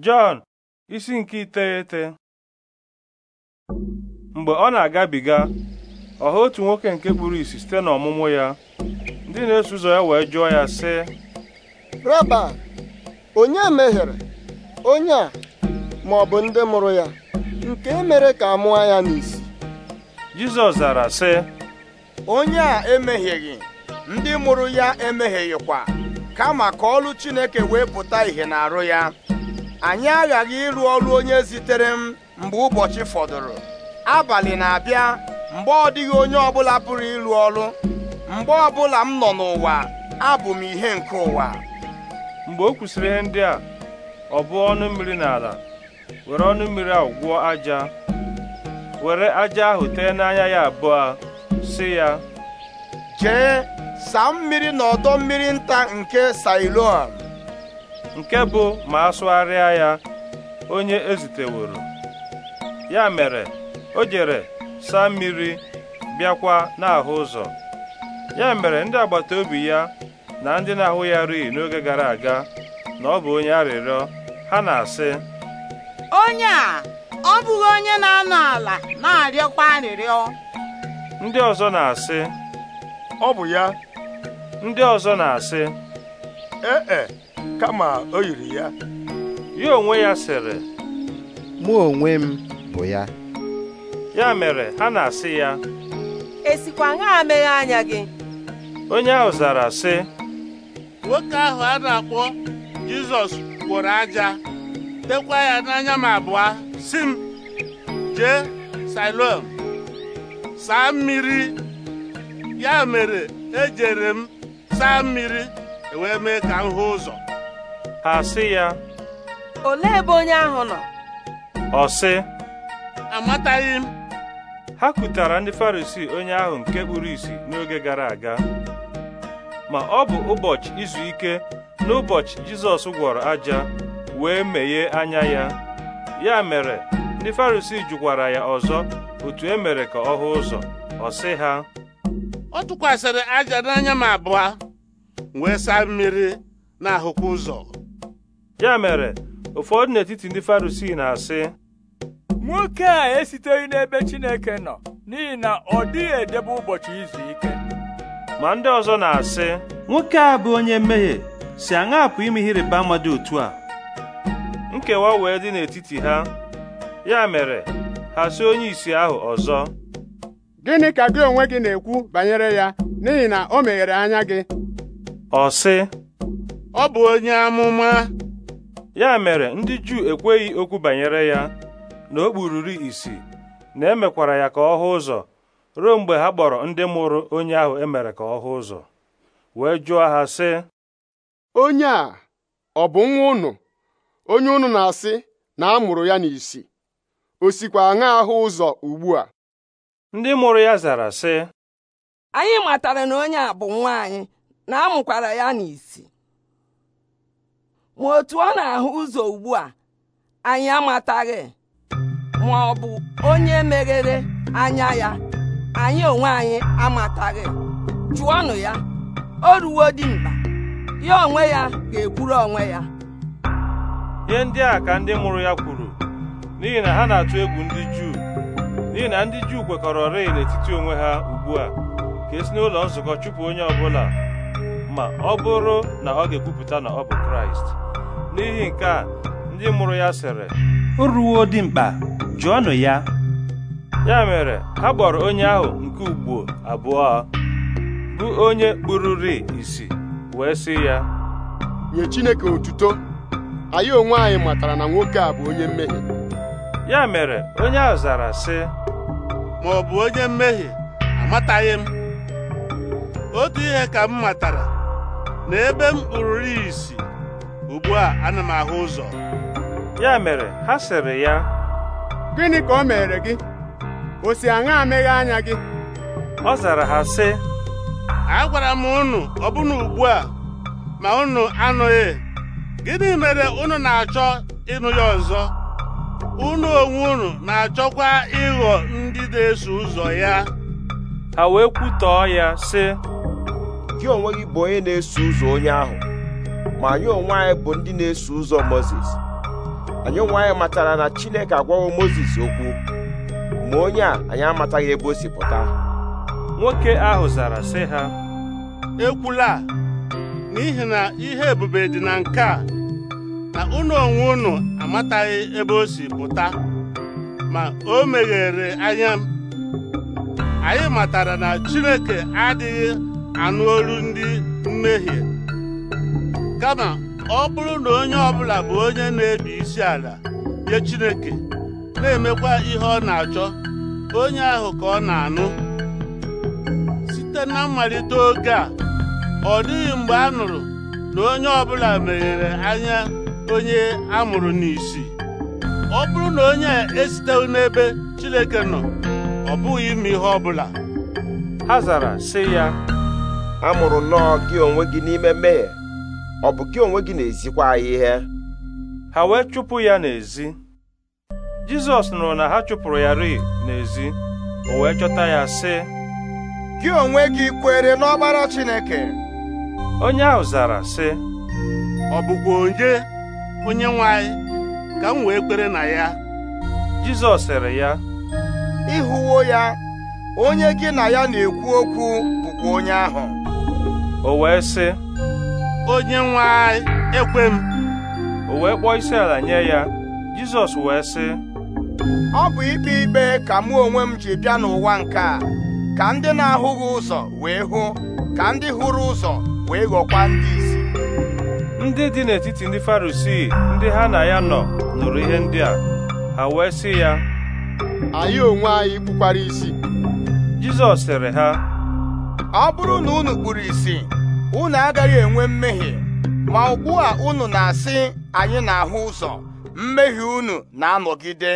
Jọn isi nke iteghete mgbe ọ na-agabiga ọ hụ otu nwoke nke kpuru isi site n'ọmụmụ ya ndị na-eso ụzọ ya wee jụọ ya sị Raba onye mehiere onye a ma ọ bụ ndị mụrụ ya nke e mere ka a mụọ ya n'isi Jizọs zara sị onye a emehieghị ndị mụrụ ya emehighịkwa kama ka ọlụ Chineke wee pụta ìhè n'arụ ya anyị aghaghị ịrụ ọrụ onye zitere m mgbe ụbọchị fọdụrụ abalị na-abịa mgbe ọ dịghị onye ọbụla pụrụ ịrụ ọrụ mgbe ọbụla m nọ n'ụwa abụ m ihe nke ụwa mgbe o kwụsịrị ihe ndị a ọ bụ ọnụ mmiri n'ala were ọnụ mmiri ahụ gwụọ aja were aja ahụ tee n'anya ya abụọ sị ya jee saa mmiri na ọdọ mmiri nta nke Siloam nke bụ ma a ya onye eziteworo ya mere o jere saa mmiri bịakwa n'ahụ ụzọ ya mere ndị agbata obi ya na ndị na-ahụ ya rii n'oge gara aga na ọ bụ onye arịrịọ ha na-asị onye a ọ bụghị onye na-anọ ala na-arịọkwa arịrịọ ndị ọzọ na-asị ọ bụ ya ndị ọzọ na-asị ee e, kama o yiri ya ya onwe ya sịrị mụ onwe m bụ ya ya mere ha na-asị ya esikwa ṅaa meghe anya gị onye ahụ zara sị nwoke ahụ a na-akpọ Jizọs gwọrọ aja tekwa ya n'anya m abụọ si m jee Siloam saa mmiri ya mere ejere m saa mmiri e wee mee ka m hụ ụzọ ha sị ya olee ebe onye ahụ nọ ọ sị amataghị m ha kutara ndị Farisii onye ahụ nke kpuru isi n'oge gara aga ma ọ bụ ụbọchị izu ike n'ụbọchị Jizọs gwọrọ aja wee meghee anya ya ya mere ndị Farisii jụkwara ya ọzọ otu e mere ka ọ hụ ụzọ ọ sị ha ọ tụkwasịrị aja n'anya m wee saa mmiri na ụzọ ya mere ụfọdụ n'etiti ndị Farisii na-asị nwoke a esiteghị n'ebe Chineke nọ n'ihi na ọ dịghị edebe ụbọchị izu ike ma ndị ọzọ na-asị nwoke a bụ onye mmehie si aṅa apụ ime ihe ịrịba ama otu a nkewa wee dị n'etiti ha ya mere ha si onye isi ahụ ọzọ gịnị ka gị onwe gị na-ekwu banyere ya n'ihi na o meghere anya gị ọ sị ọ bụ onye amụma ya mere ndị Juu ekweghị okwu banyere ya na o kpururu isi na emekwara ya ka ọ hụ ụzọ ruo mgbe ha kpọrọ ndị mụrụ onye ahụ emere ka ọ hụ ụzọ wee jụọ ha sị onye a ọ bụ nwa ụnụ onye ụnụ na-asị na a mụrụ ya n'isi o sikwa aṅa ahụ ụzọ ugbu a ndị mụrụ ya zara sị anyị matara na onye a bụ nwa anyị na amụkwara ya n'isi ma otu ọ na-ahụ ụzọ ugbu a anyị amataghị ma ọ bụ onye meghere anya ya anyị onwe anyị amataghị jụọnụ ya o ruwo dị mkpa ya onwe ya ga-ekwuru onwe ya ihe ndị a ka ndị mụrụ ya kwuru n'ihi na ha na-atụ egwu ndị Juu n'ihi na ndị Juu kwekọrọ rịị n'etiti onwe ha ugbu a ka esi n'ụlọ nzukọ chụpụ onye ọbụla ma ọ bụrụ na ọ ga-ekwupụta na ọ bụ Kraịst n'ihi nke a ndị mụrụ ya sịrị o ruo dị mkpa jụọnụ ya ya mere ha kpọrọ onye ahụ nke ugbo abụọ bụ onye kpụrụrị isi wee sị ya nye Chineke otuto anyị onwe anyị matara na nwoke a bụ onye mmehie ya mere onye ahụ zara sị ma ọ bụ onye mmehie amataghị m otu ihe ka m matara na ebe m kpururu isi ugbu a ana m ahụ ụzọ ya mere ha sịrị ya gịnị ka o mere gị o si aṅa amịghị anya gị ọ zara ha sị agwara m unu ọbụna ugbu a ma unu anụghị gịnị mere unu na-achọ ịnụ ya ọzọ unu onwe unu na-achọkwa ịghọ ndị na-eso ụzọ ya ha wee kwutọọ ya sị gị onwe gị bụ onye na-eso ụzọ onye ahụ ma anyị onwe anyị bụ ndị na-eso ụzọ mozis anyị onwe anyị matara na chineke agwawo mozis okwu ma onye a anyị amataghị ebe o si pụta nwoke ahụ zara sị ha ekwula n'ihi na ihe ebube dị na nke a na ụlọ onwe unu amataghị ebe o si pụta ma o meghere anya anyị matara na chineke adịghị anụ olu ndị mmehie kama ọ bụrụ na onye ọbụla bụ onye na-ebi isi ala nye Chineke na-emekwa ihe ọ na-achọ onye ahụ ka ọ na-anụ site na mmalite oge a ọ dịghị mgbe a nụrụ na onye ọbụla meghere anya onye a mụrụ n'isi ọ bụrụ na onye esitewu n'ebe Chineke nọ ọ bụghị ime ihe ọbụla ha zara sị ya amụrụ nnọọ gị onwe gị n'ime mmehie ọ bụ gị onwe gị na-ezikwa anyị ihe ha wee chụpụ ya n'ezi Jizọs nụrụ na ha chụpụrụ ya ri n'ezi o wee chọta ya sị gị onwe gị kwere n'ọgbara Chineke onye ahụ zara sị ọ bụkwa onye onye nwe ka m wee kwere na ya Jizọs sịrị ya ịhụwo ya onye gị na ya na-ekwu okwu bụkwa onye ahụ o wee sị onye nwe anyị ekwe m o wee kpọọ isi ala nye ya jizọs wee sị ọ bụ ikpe ikpe ka mụ onwe m ji bịa n'ụwa nke a ka ndị na-ahụghị ụzọ wee hụ ka ndị hụrụ ụzọ wee ghọkwa ndị isi ndị dị n'etiti ndị farisii ndị ha na ya nọ nụrụ ihe ndị a ha wee sị ya anyị onwe anyị kpukwara isi jizọs sịrị ha ọ bụrụ na unu kpuru isi unu agaghị enwe mmehie ma ugbu a unu na-asị anyị na-ahụ ụzọ mmehie unu na-anọgide